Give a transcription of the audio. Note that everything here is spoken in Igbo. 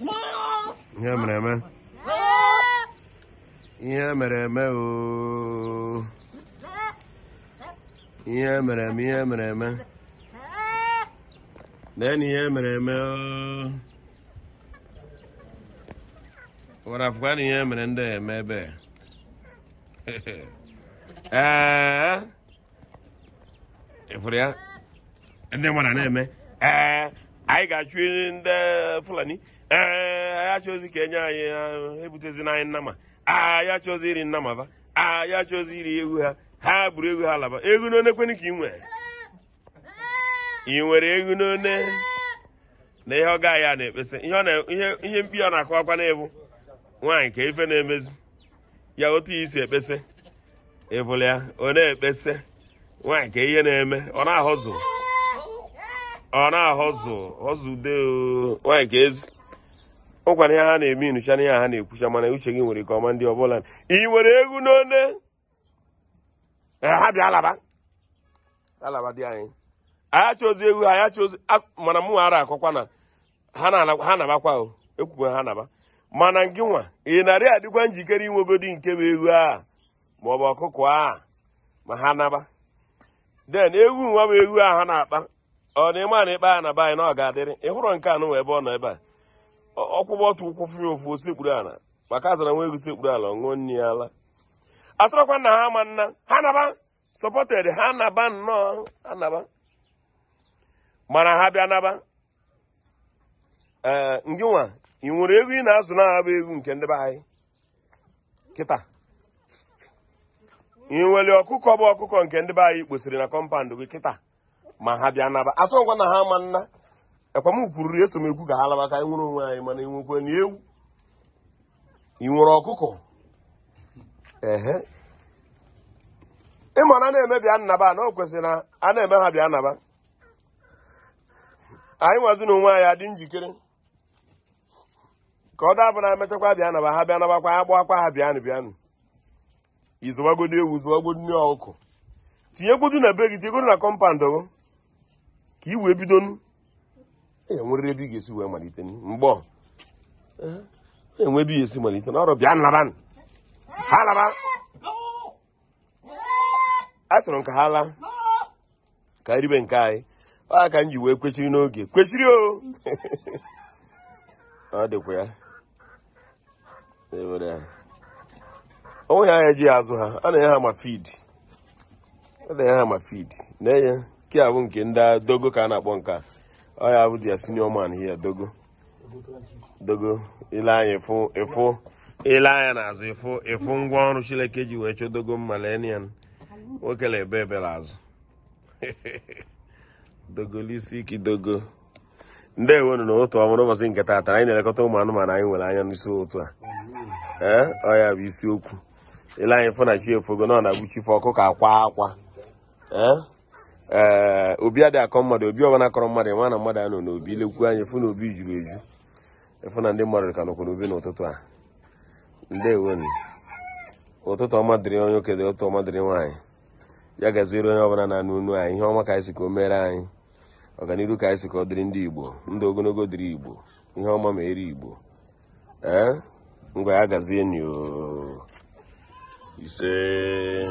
ihe mere eme ihe mere eme ooo ihe mere eme ihe mere eme na ihe na ihe mere ndị eme ebe ee ịfụrụ ya ndị mmadụ na-eme ee anyị ga-achụ ndị fulani ee anyị achọzi ka enye anyị ebutezi anyị nnama anyị achọzi iri nnama ba anyị achọzi iri egwu ha ha buru egwu ha laba egwu n'one kwenu ka ị nwere ị nwere egwu n'one na ihe ọ gaghị a na-ekpesa ihe mkpi ọ na-akụ akwa na-ebu nwaanyị ka ife na-emezi ya otu ihe isi ekpesa ịbụla ya ọ na-ekpesa nwaanyị ka ihe na-eme ọ na-ahọzụ ọ na-ahọzụ họzụ de nwanyị ka ezi ụkwara ihe ha na-eme inucha na ihe ha na-ekwucha mana uche gị nwere ka ọma ndị ọbụla ị nwere egwu n'one ha bịa alaba alaba dị anyị anya chọzi egwu anya chọzi mana mụ ara akọkwa na ha nabakwa o ekwukwe ha naba mana gị nwa ị narị adịkwa njikere inwegodi nke bụ egwu a maọbụ ọkụkụ a ma ha naba den egwu nwa bụ egwu a ha na-akpa ọ na a na ikpe a na be anyị na ọ ga-adịrị ịhụrụ nke anụ ebe ọ nọ ebe a ọkwụgbọ ọtụ ụkwụ fụrụ ofu osekpuru ala maka azara nwa ego sekpuru ala nụ nri ya ala atụrụkwa na ha ma nna ha naba sọpọted ha naba nnọọ ha naba mana ha bịa naba ee ngị nwa ị nwere ego ị na-azụ na bụ egwu nke ndị be anyị kịta ị nwere ọkụkọ bụ ọkụkọ nke ndị be anyị kposiri na kọmpandụ gị kịta ma ha bịa naba asọ ngwa na ha ama nna ekwamkwuriri eso m ekwu ka ha laba ka anyị nwere onwe anyị mana inwekwe na ewu ị nwere ọkụkọ ehe ịma na na-eme bịa nnaba na o kwesịrị na a na-eme ha bịa naba. anyị nwazi na onwe anyị adị njikere ka ọ dabụ na emechakwa bịa naba ha bịa nabakwa ya gbakwa ha bịanụ bịanụ izụwagodi ewu zụwagodi ọkụkọ tinyegwodu na be gị tinyegwodu na kọmpandụ ka i wee bido e nwere ebe ị ga-esi wee malite mgbe enwe ebe ị ga-esi malite na ọrụ bịa nlaba ha laba a sọrọ nke ha laa ka ribe nke anyị ọ ka m ji wee kwechiri n'oge kwechiri o ọ dịkwa ya onwe e onweghị anya ji azụ ha a na-enye ha ma fid a na-enye ha ma fid na-enye nke a bụ nke ndị dogo ka a na-akpọ nke ọ ya bụ ya senior man here dogo dogo ile anya ịfụ ịfụ ile anya n'azụ ịfụ ịfụ ngwa ọrụ chileke ji wee chọ dogo mmalenian nwoke na ebe ebere azụ dogolisi ike dogo ndị ewenu na otu ọmụrụ ụbọchị nke taata anyị na-elekọta ụmụ anụmanụ anyị nwere anya n'isi otu a ee ọ ya bụ isiokwu ile anyị na chi efogo na ọ na-agbuchife ka akwa akwa ee ee eh, obi adịghị akọ mmadụ obi ọbụla akọrọ mmadụ nwa na mmadụ anọ n'obi lekwu anya efu na obi juru eju efu na ndị mmadụ ka nọkwa n'obi n'ụtụtụ a ndewo ụtụtụ ọma dịrị onye okede ụtụ ọma dịrị nwaanyị ya gaziere onye ọbụla na-anụ anyị ihe ọma ka anyị si ka o mere anyị ọganihu ka anyị si ka ọ dịrị ndị igbo ndụ ogologo dịrị igbo ihe ọma ma eri igbo ee eh, ngwa ya gazie nyo ise